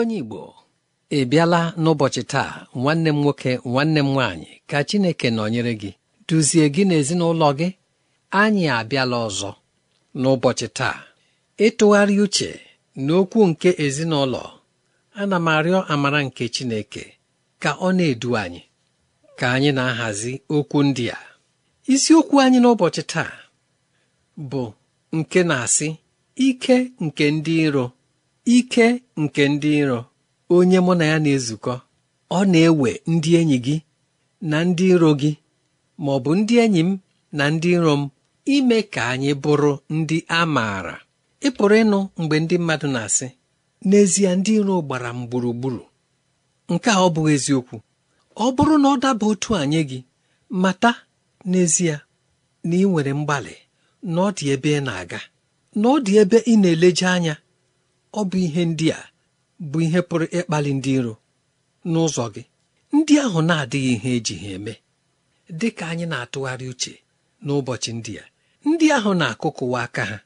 onye Igbo ị bịala n'ụbọchị taa nwanne m nwoke nwanne m nwaanyị ka Chineke nọnyere gị duzie gị na ezinụlọ gị anyị abịala ọzọ n'ụbọchị taa ịtụgharị uche n'okwu nke ezinụlọ ana m arịọ amara nke Chineke ka ọ na-edu anyị ka anyị na-ahazi okwu ndị a isiokwu anyị n'ụbọchị taa bụ nke na-asị ike nke ndị iro ike nke ndị iro onye mụ na ya na-ezukọ ọ na-ewe ndị enyi gị na ndị iro gị ma ọ bụ ndị enyi m na ndị iro m ime ka anyị bụrụ ndị a maara ị pụrụ ịnụ mgbe ndị mmadụ na-asị n'ezie ndị iro gbara m gburugburu nke a ọ bụghị eziokwu ọ bụrụ na ọ daba otu anyị gị mata n'ezie na ị nwere mgbalị na ọ dị ebe ị na-aga na ọ dị ebe ị na-eleje anya ọ bụ ihe ndị a bụ ihe pụrụ ịkpali ndị iro n'ụzọ gị ndị ahụ na-adịghị ihe eji ha eme dị ka anyị na-atụgharị uche n'ụbọchị ndị a ndị ahụ na-akụkụwa aka ha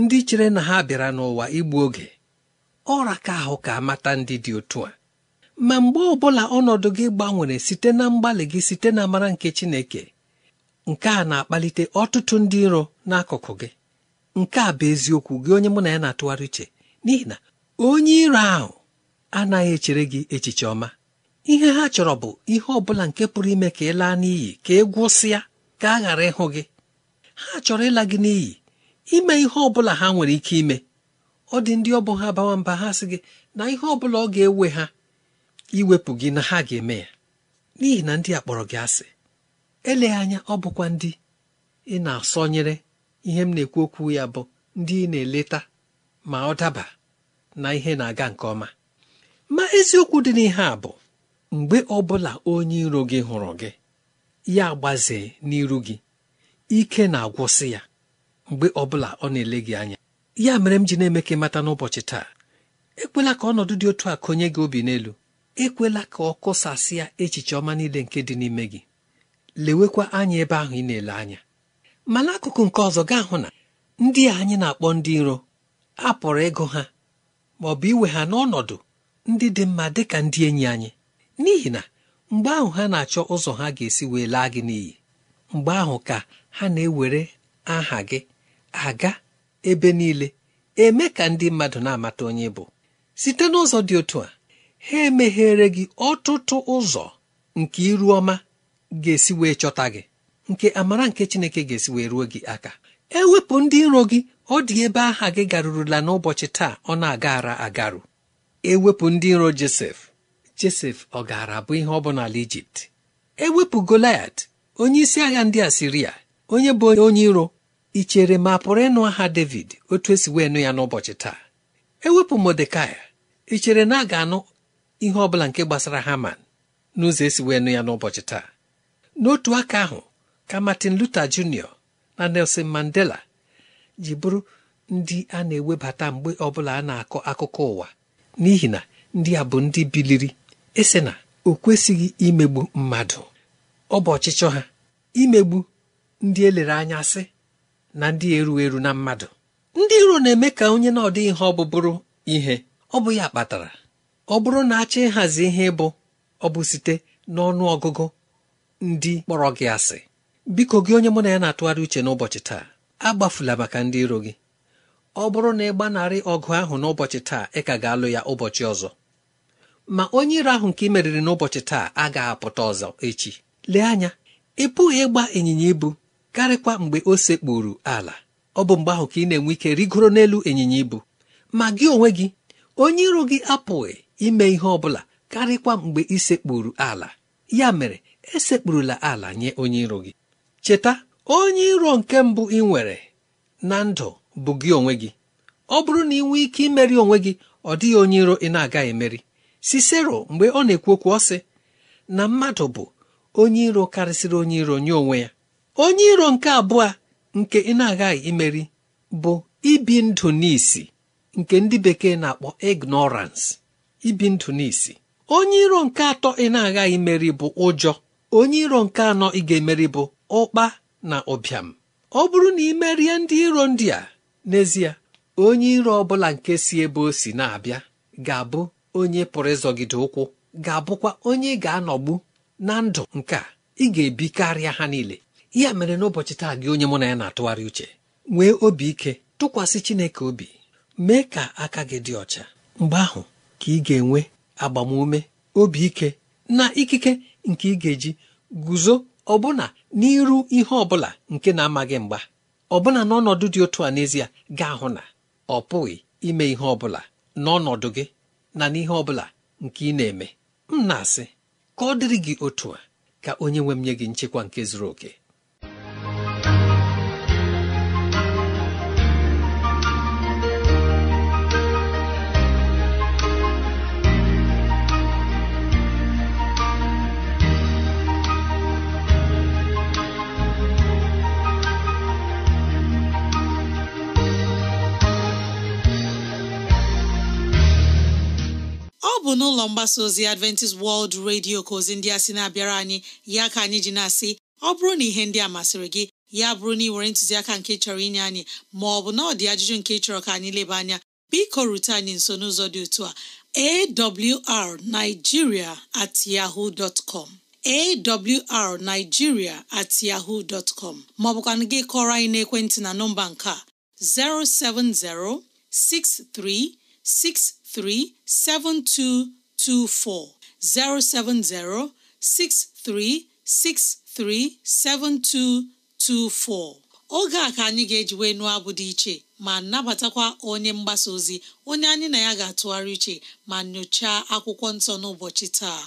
ndị chere na ha bịara n'ụwa igbu oge ọra ka ahụ ka amata ndị dị otu a ma mgbe ọ bụla ọnọdụ gị gbanwere site na mgbalị gị site na amara nke Chineke nke a na-akpalite ọtụtụ ndị iro n'akụkụ gị nke a bụ eziokwu gị onye mụ na ya na-atụgharị uche n'ihi na onye iro ahụ anaghị echere gị echiche ọma ihe ha chọrọ bụ ihe ọ bụla nke pụrụ ime ka ị laa n'iyi ka ị e gwụsịa ka a ghara ịhụ gị ha chọrọ ịla gị n'iyi ime ihe ọbụla ha nwere ike ime ọ dị ndị ọbụ ha bawa mba ha sị gị na ihe ọbụla ọ ga-ewe ha iwepụ gị na ha ga-eme ya n'ihi na ndị a kpọrọ gị asị eleghị anya ọ bụkwa ndị ị na-asọnyere ihe m na-ekwu okwu ya bụ ndị ị na-eleta ma ọ daba na ihe na-aga nke ọma ma eziokwu dị n'ihe a bụ mgbe ọbụla onye iro gị hụrụ gị ya gbazee n'iru gị ike na-agwụsị ya mgbe ọbụla ọ na-ele gị anya ya mere m ji na-eme ka ịmata n'ụbọchị taa ekwela ka ọnọdụ dị otu a konye gị obi n'elu ekwela ka ọ kụsasịa echiche ọma niile nke dị n'ime gị lewekwa anya ebe ahụ ị na-ele anya ma n'akụkụ nke ọzọ gaa hụ na ndị a anyị na-akpọ ndị iro a pụrụ ịgụ ha ma ọ bụ iwe ha n'ọnọdụ ndị dị mma dị ka ndị enyi anyị n'ihi na mgbe ahụ ha na-achọ ụzọ ha ga-esi wee laa gị n'iyi mgbe ahụ ka ha na-ewere aha gị aga ebe niile eme ka ndị mmadụ na-amata onye bụ site n'ụzọ dị otu a ha emeghere gị ọtụtụ ụzọ nke iru ọma ga-esi wee chọta gị nke amara nke Chineke ga-esi wee ruo gị aka ewepụ ndị iro gị ọ dị ebe aha gị garurula n'ụbọchị taa ọ na-agara agaru ewepụ ndị iro josef josef ọ gaara abụ ihe ọ bụ n'ala ijipt ewepụ goliat onye isi agha ndị asiria onye bụ onye iro ichere ma pụrụ ịnụ aha david otu esi wee nụ ya n'ụbọchị taa ewepụ modekai ichere na a ga-anụ ihe ọ bụla nke gbasara haman n'ụzọ esi wee nụ ya n'ụbọchị taa n'otu aka ahụ ka martin luther jr na nelson mandela ji bụrụ ndị a na-ewebata mgbe ọbụla a na-akọ akụkọ ụwa n'ihi na ndị a bụ ndị biliri ese na o kwesịghị imegbu mmadụ ọ bụ ọchịchọ ha imegbu ndị elere anya sị na ndị eru eru na mmadụ ndị iro na-eme ka onye na ọdịghị ihe ọ bụ bụrụ ihe ọ bụ ya kpatara ọ bụrụ na achọ ịhazi ihe ịbụ ọ bụ site n'ọnụ ọgụgụ ndị kpọrọ gị asị biko gị onye mụ na ya na-atụgharị uche n'ụbọchị taa agbafula maka ndị iro gị ọ bụrụ na ị gbanarị ọgụ ahụ n'ụbọchị taa ị ka ga-alụ ya ụbọchị ọzọ ma onye iro ahụ nke ị meriri n'ụbọchị taa agaghị apụta ọzọ echi lee anya ị pụghị ịgba ịnyịnya ibu karịkwa mgbe o sekpuru ala ọ bụ mgbe ahụ ka ị na-enwe ike rigoro n'elu ịnyịnya ibu ma gị onwe gị onye iro gị apụghị ime ihe ọ bụla karịkwa mgbe ị sekpuru ala ya mere esekpurula ala nye onye iro gị cheta onye iro nke mbụ ị nwere na ndụ bụ gị onwe gị ọ bụrụ na ị nwee ike imeri onwe gị ọ dịghị onye iro ị na-agaghị emeri sisero mgbe ọ na-ekwu okwu ọ sị na mmadụ bụ onye iro karịsịrị onye iro nye onwe ya onye iro nke abụọ nke ị na-agaghị imeri bụ ibi ndụ n'isi nke ndị bekee na-akpọ ignorance ibi ndụ n'isi onye iro nke atọ ị na-agaghị imeri bụ ụjọ onye iro nke anọ ị ga-emeri bụ ụkpa na ụbịam ọ bụrụ na ị merie ndị iro ndị a n'ezie onye iro ọ bụla nke si ebe o si na-abịa ga-abụ onye pụrụ ịzọgide ụkwụ ga-abụkwa onye ị ga-anọgbu na ndụ nke a ị ga-ebi karịa ha niile ya mere n'ụbọchị taa gị onye mụ na ya na-atụgharị uche nwee obi ike tụkwasị Chineke obi mee ka aka gị dị ọcha mgbe ahụ ka ị ga-enwe agbamume obi ike na ikike nke ị ga-eji guzo ọbụna n'iru ihe ọbụla nke na-amaghị mgba ọbụna n'ọnọdụ dị otu a n'ezie ga-ahụ na ọ pụghị ime ihe ọbụla n'ọnọdụ gị na n'ihe ọbụla nke ị na-eme m na-asị ka ọ dịrị gị otu a ka onye nwe m nye gị nchekwa nke zuru oke bụ n'ụlọ mgbasa ozi Adventist World Radio ka ozi ndị a sị na-abịara anyị ya ka anyị ji na-asị ọ bụrụ na ihe ndị a masịrị gị ya bụrụ na ị nwere ntụziaka nke chọrọ inye anyị ma ọ bụ na ọ dị ajụjụ nke chọrọ ka anyị leba anya biko rute anyị nso n'ụzọ dị otu a arigiria at yahoo dot com awrnigeria at yahoo dot gị kọrọ anyị n'ekwentị na nọmba nke a 070 6363 7224 oge a ka anyị ga-ejiwe nụọ abụ dị iche ma nabatakwa onye mgbasa ozi onye anyị na ya ga-atụgharị iche ma nyochaa akwụkwọ nsọ n'ụbọchị taa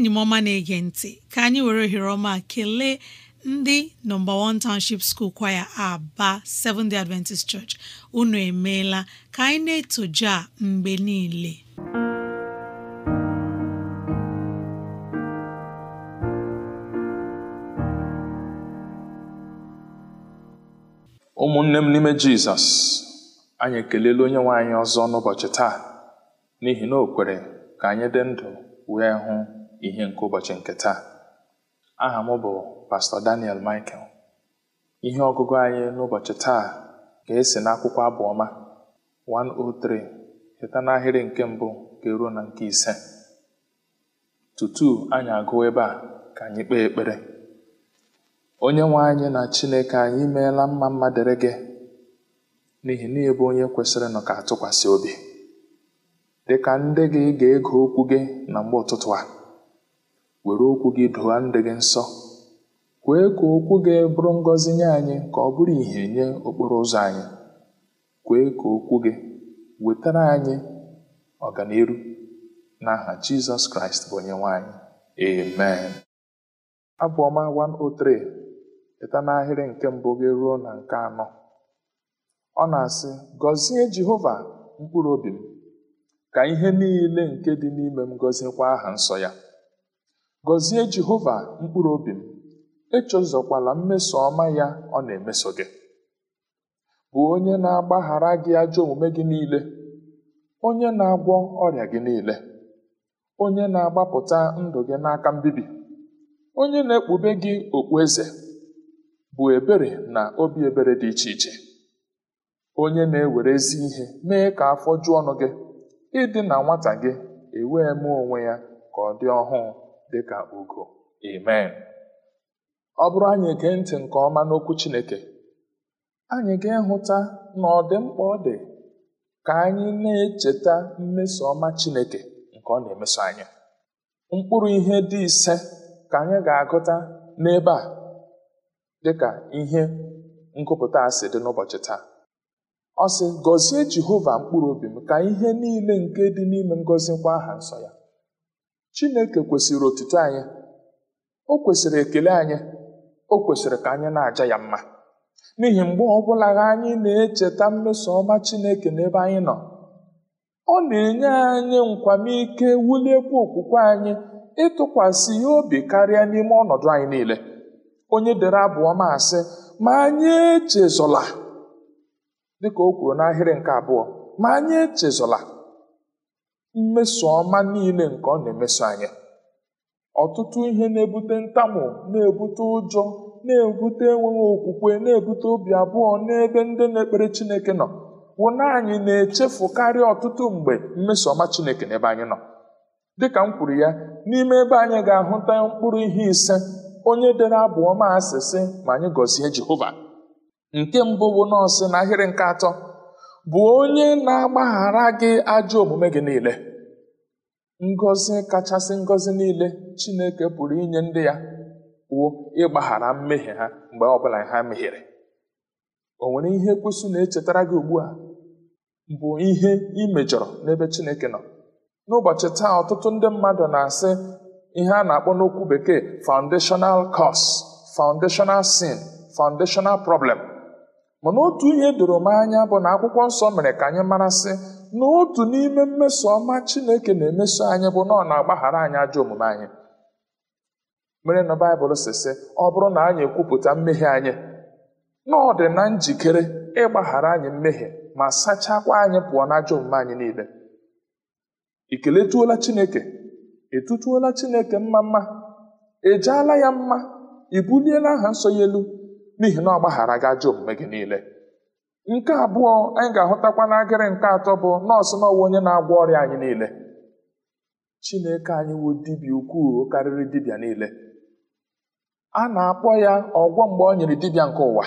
enyi m ọma na-ege ntị ka anyị were ohere ọma kelee ndị nọmba 1 township school kwaya aba Seventh Day Adventist Church unu emeela ka anyị na etoja a mgbe niile ụmụnne m n'ime jizọs anyị ekelela onye nwe anyị ọzọ n'ụbọchị taa n'ihi na o kwere ka anyị dị ndụ wee hụ ihe nke ụbọchị nke taa aha m bụ pastọ Daniel Michael ihe ọgụgụ anyị n'ụbọchị taa ga-esi n'akwụkwọ abụọma 103 cheta n'ahịrị nke mbụ ga-eruo na nke ise tutu anyị agụ ebe a ka anyị kpee ekpere onye nwe anyị na Chineke anyị meela mma mma dịrị gị n'ihi na ị bụ onye kwesịrị ka atụkwasị obi dịka ndị gị ga-ege okwu gị na mgbe ụtụtụ a were okwu gị dụwa ndị gị nsọ kwee ka okwu gị bụrụ ngọzi nye anyị ka ọ bụrụ ìhè nye okporo ụzọ anyị kwee ka okwu gị wetara anyị ọganiru n'aha jizọs kraịst bụ onye nwanyị amen abụọma 103 pụta n'ahịrị nke mbụ gị ruo na nke anọ ọ na-asị gọzie jehova mkpụrụ obi m ka ihe niile nke dị n'ime m gọziekwa aha nsọ ya Gọzie Jehova mkpụrụ obi m, echezọkwala mmeso ọma ya ọ na-emeso gị. Bụ onye na-agbaghara gị ajọ omume gị niile, onye na-agwọ ọrịa gị niile, onye na-agbapụta ndụ gị n'aka mbibi, onye na-ekpube gị eze bụ ebere na obi ebere dị iche iche. Onye na-ewere ezi ihe mee ka afọ jụọ ọnụ gị, ịdị na nwata gị ewee mee onwe ya ka ọ dị ọhụụ. dịka ugo amen ọ bụrụ anyị gee ntị nke ọma n'okwu Chineke anyị ga-ehụta na ọ dị mkpa ọ dị ka anyị na-echeta mmeso ọma Chineke nke ọ na-emeso anya. mkpụrụ ihe dị ise ka anyị ga-agụta n'ebe a dịka ihe nkụpụta asị dị n'ụbọchị taa ọ sị gọzie Jehova mkpụrụ obi m ka ihe niile nke dị n'ime ngọzi kwa aha nsọ ya chineke kwesịrị otuto anyị o kwesịrị ekele anyị o kwesịrị ka anyị na-aja ya mma n'ihi mgbe ọbụla anyị na-echeta mmeso ọma chineke n'ebe anyị nọ ọ na-enye anyị nkwamike wuliekwa okwukwe anyị ịtụkwasị ihe obi karịa n'ime ọnọdụ anyị niile onye dere abụọ ma asị ma anyị echezọla!" dịka o kwuru n'ahịrị nke abụọ ma anyị echezola mmeso ọma niile nke ọ na-emeso anyị ọtụtụ ihe na-ebute ntamu na-ebute ụjọ na-ebute enweghị okwukwe na-ebute obi abụọ n'ebe ndị na-ekpere chineke nọ bụ na anyị na echefukarị ọtụtụ mgbe mmeso ọma chineke n'ebe anyị nọ dịka m kwuru ya n'ime ebe anyị ga-ahụta mkpụrụ ihe ise onye dere abụọ ma asịsị ma anyị gọzie jehova nke mbụ bụ nọọsụ na ahịrị nke atọ bụ onye na-agbaghara gị ajọ omume gị niile ngọzi kachasị ngọzi niile chineke pụrụ inye ndị ya wụ ịgbaghara mmehie ha mgbe ọbụla ha mehiere o nwere ihe kwesị na-echetara gị ugbu a bụ ihe imejọrọ n'ebe chineke nọ n'ụbọchị taa ọtụtụ ndị mmadụ na-asị ihe a na-akpọ n'okwu bekee foundational cause foundational sin foundational problem mana otu ihe doro m anya bụ na akwụkwọ nsọ mere ka anyị marasị na otu n'ime mmeso ọma chineke na-emeso anyị bụ na ọ na-agbaghara anyị ajọ omume anyị mere na baịbụl sisi ọ bụrụ na anyị ekwupụta mmehie anyị na ọ dị na njikere ịgbaghara anyị mmehie ma sachakwa anyị pụọ na ajọ omume anyị niile ị keletuola chineke etutuola chineke mma mma ejeela ya mma i e buliela aha nsọ ya elu n'ihi na ọ gbaghara gị ajọ omume gị niile nke abụọ anyị ga-ahụtakwa n'agịrị nke atọ bụ nọọsụ na onye na-agwọ ọrịa anyị niile chineke anyị wụ dibịa ukwuu karịrị dibịa niile a na-akpọ ya ọgwọ mgbe ọ nyere dibịa nke ụwa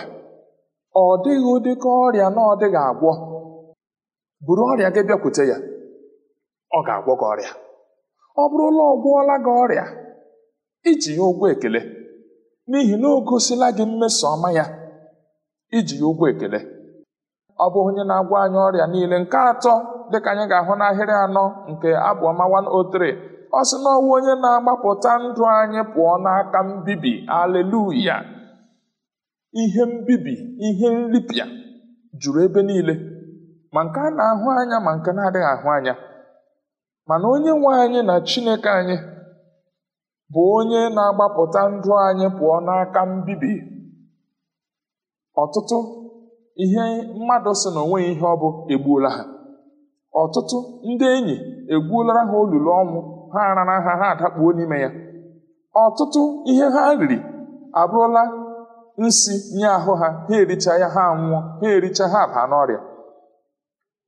ọ dịghị ụdị ka ọrịa na ọ dịghị agwọ buru ọrịa gị bịakwute ya ọ ga-agwọ gị ọrịa ọ bụrụla ọ gwụọla gị ọrịa iji ya ụgwọ ekele n'ihi na o gosila gị mmesoọma ya iji ya ụgwọ ekele ọ bụ onye na agwa anyị ọrịa niile nke atọ dịka anyị ga-ahụ n'ahịrị anọ nke abụọma 103 ọ sị na ọwụ onye na-agbapụta ndụ anyị pụọ n'aka mbibi aleluya ihe mbibi ihe nripịa juru ebe niile ma nke a na-ahụ anya ma nke na-adịghị ahụ anya mana onye nwe anyị na chineke anyị bụ onye na-agbapụta ndụ anyị pụọ n'aka mbibi ọtụtụ ihe mmadụ si na onweghị ihe ọ bụ egbuola ha ọtụtụ ndị enyi egbuola ha olulu ọnwụ ha arara ha ha adakpuo n'ime ya ọtụtụ ihe ha riri abụrụla nsi nye ahụ ha ha ericha ya ha anwụọ ha ericha ha baa n'ọrịa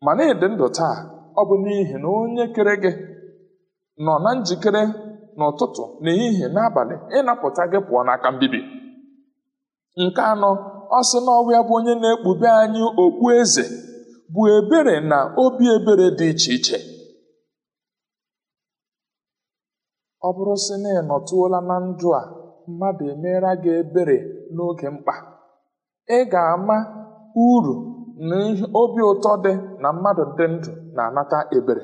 ma na-ede ndụ taa ọ bụ n'ihi na onye kere gị nọ na njikere n'ụtụtụ n'ehihie n'abalị ịnapụta gị pụọ n'aka mbibi nke anọ ọ sị na bụ onye na-ekpube anyị okpu eze bụ ebere na obi ebere dị iche iche ọ bụrụ sị na ị nọtụola na ndụ a mmadụ emeela gị ebere n'oge mkpa ị ga-ama uru na obi ụtọ dị na mmadụ dị ndụ na-anata ebere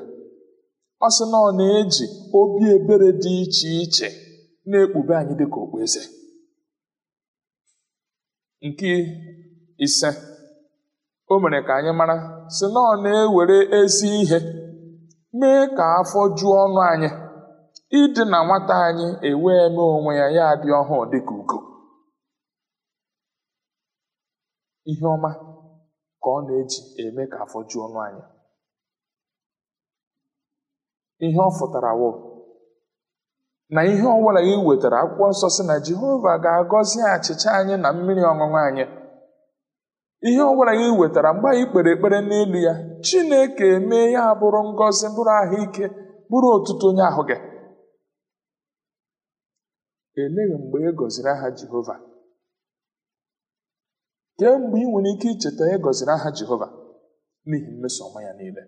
ọ sị na ọ na-eji obi ebere dị iche iche na-ekpube anyị dịka okpueze nke ise o mere ka anyị mara sị na ọ na-ewere ezi ihe mee ka afọ ju ọnụ anyị ịdị na nwata anyị ewee mee onwe ya ya dị ọhụụ dịka ugo ihe ọma ka ọ na-eji eme ka afọ ju ọnụ anyị ihe ọ fụtara wụ na ihe ọbụla ị wetara akwụkwọ nsọ si na jehova ga-agọzi achịcha anyị na mmiri ọṅụṅụ anyị ihe ọbụla ị wetara mgbe anyị kpere ekpere n'elu ya chineke mee ya bụrụ ngọzi bụrụ ahụike bụrụ ọtụtụ onye ahụ gị eleghị mgbe e gọziri aha jehova kee mgbe ị nwere ike icheta e gọziri aha jehova n'ihi mmeso ọma ya niile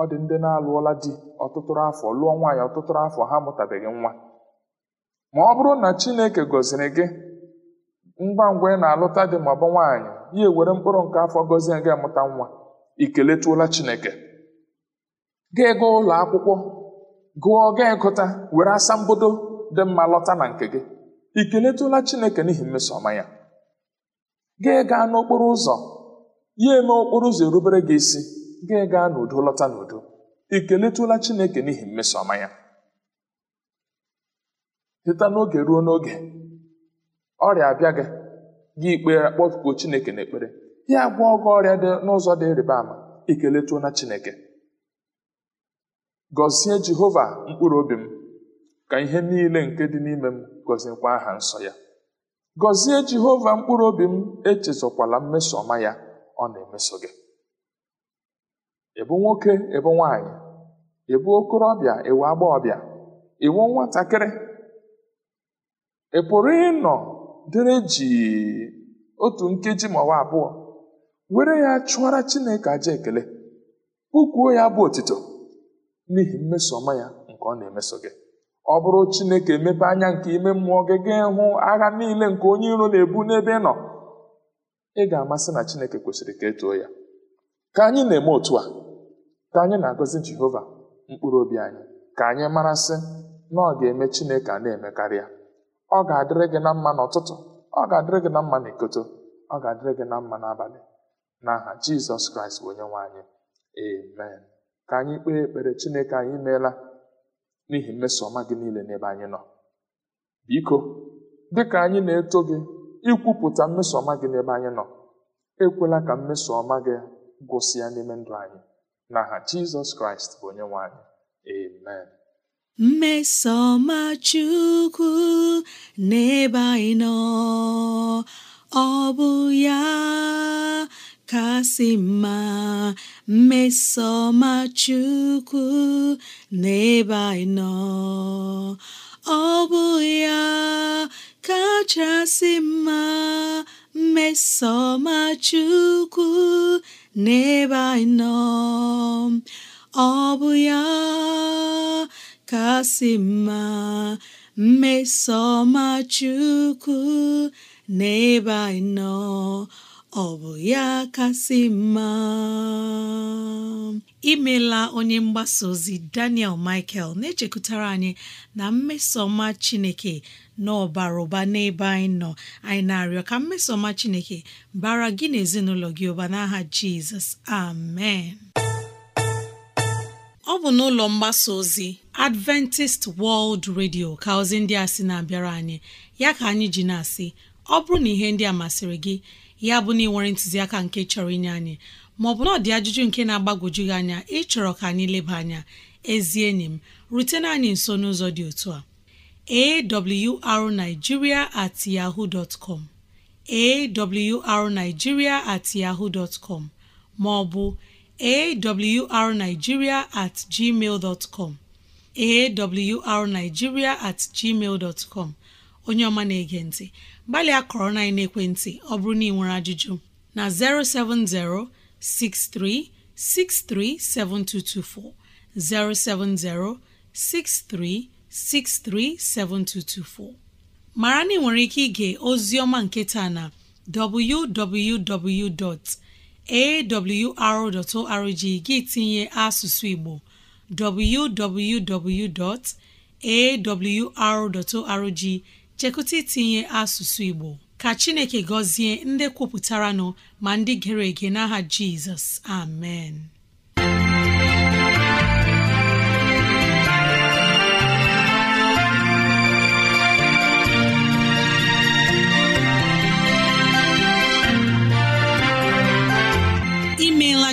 ọ dị ndị na-alụọla di ọtụtụrụ afọ lụọ nwaanyị ọtụtụrụ afọ ha mụtabeghị nwa ma ọ bụrụ na chineke gọziri gị ngwa ngwa ị na-alụta dị ma ọ bụ nwaanyị ya ewere mkpụrụ nke afọ gọzie gị amụta nwa ikeletuola chineke gaa ego ụlọ akwụkwọ gụọ gaa gụta were asambodo dị mma lọta na nke gị ikeletuola chineke n'ihi mmeso ọma ya gaa gaa n'okporo ụzọ ya eme okporo ụzọ erubere gị isi gị gaa n'udo lọta n'udo ị keletụla chineke n'ihi mmeso ọma ya site n'oge ruo n'oge ọrịa abịa gị gị ikpere kpọkuo chineke n'ekpere ya gwọọ gị ọrịa dị n'ụzọ dị ịrịba ama ikeletụọ na chineke gọzie jehova mkpụrụ obi m ka ihe niile nke dị n'ime m gọziekwa aha nsọ ya gọzie jehova mkpụrụ obi m echezọkwala mmeso ọma ya ọ na-emeso gị ịbụ nwoke ịbụ nwaanyị ịbụ okorobịa ịwụ agbọghọbịa ịwụ nwatakịrị ị e pụrụ ịnọ dịrị jii otu nkeji ọwa abụọ were ya chụọra chineke aja ekele kpụkwuo ya bụ otito n'ihi mmesoma ya nke ọ na-emeso gị ọ bụrụ chineke emepe anya nke ime mmụọ gị gaa hụ agha niile nke onye iro na-ebu n'ebe ị nọ ị ga-amasị na chineke kwesịrị ka etoo ya ka anyị na-eme otu a ka anyị na-agọzi jehova mkpụrụ obi anyị ka anyị marasị na ọ ga-eme chineke a na karịa ọ ga-adịrị gị na mma n'ụtụtụ ọ ga-adịrị gị na mma n'ikoto ọ ga-adịrị gị na mma n'abalị n'aha jizọs kraịst bụ onye nwe anyị amen ka anyị kpee ekpere chineke anyị meela n'ihi mmeso ọma gị niile n'ebe anyị nọ biko dịka anyị na-eto gị ikwupụta mmeso ọma gị n'ebe anyị nọ ekwela ka mmeso ọma gị gwụsịa n'ime ndụ anyị n'aha Jizọs Kraịst bụ onye nwanyị. anyị amen mmesoma Chukwu n'ebe anyị nọ ọ bụ ya kasị mma mmesoma Chukwu n'ebe anyị nọ ọ bụ ya kachasị mma mmesoma Chukwu n'ebe anyị nọ ọ bụ ya kasị mma mmesoma chukwu n'ebe anyị nọ ọ bụ ya kasị mma imela onye mgbasa ozi Daniel Michael na-echekwutara anyị na mmesoma Chineke n'ọbara ụba n'ebe anyị nọ anyị na-arịọ ka mmesoma chineke bara gị na ezinụlọ gị ụba n'aha jizọs amen ọ bụ n'ụlọ mgbasa ozi adventist world radio ka ozi ndị a sị na-abịara anyị ya ka anyị ji na-asị ọ bụrụ na ihe ndị a masịrị gị ya bụ na ị nwere ntụziaka nke chọrọ inye anyị maọbụ na ọdị ajụjụ nke na-agbagwoju gị anya ịchọrọ ka anyị leba anya ezi enyi m rutena anyị nso n'ụzọ dị otu a awrnigeria at yahoo dot com awrnigeria at yahoo dot com maọbụ awrnigeria at gmail dot com awrnigeria at gmail dot com onye ọma na-ege ntị gbalịa kọrọ na ekwentị ọ bụrụ na ị nwere ajụjụ na 070 6363 7224 070 63 637224 mara na nwere ike ige ozi ọma nketa na arrg gị tinye asụsụ Igbo www.awr.org chekụta itinye asụsụ Igbo ka Chineke gọzie ndị kwupụtara nọ ma ndị gere ege n'aha Jizọs amen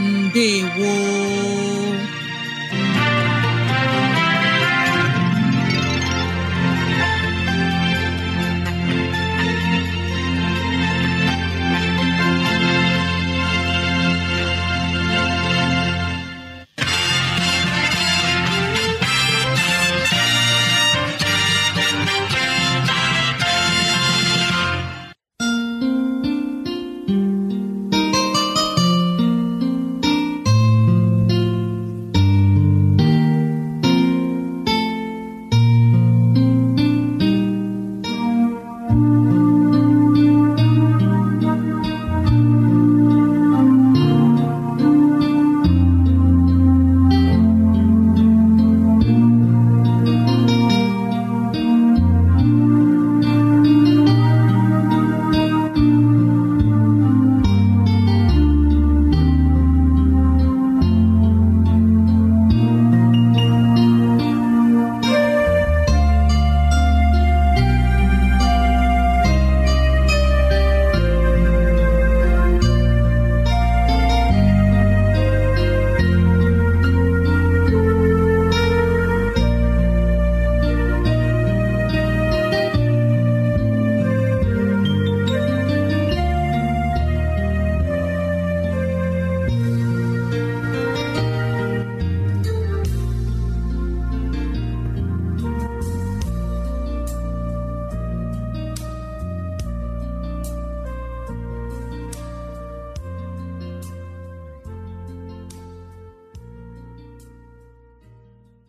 ndewo